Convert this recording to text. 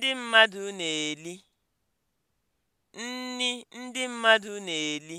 ndị mmadụ na nni ndị mmadụ na-eli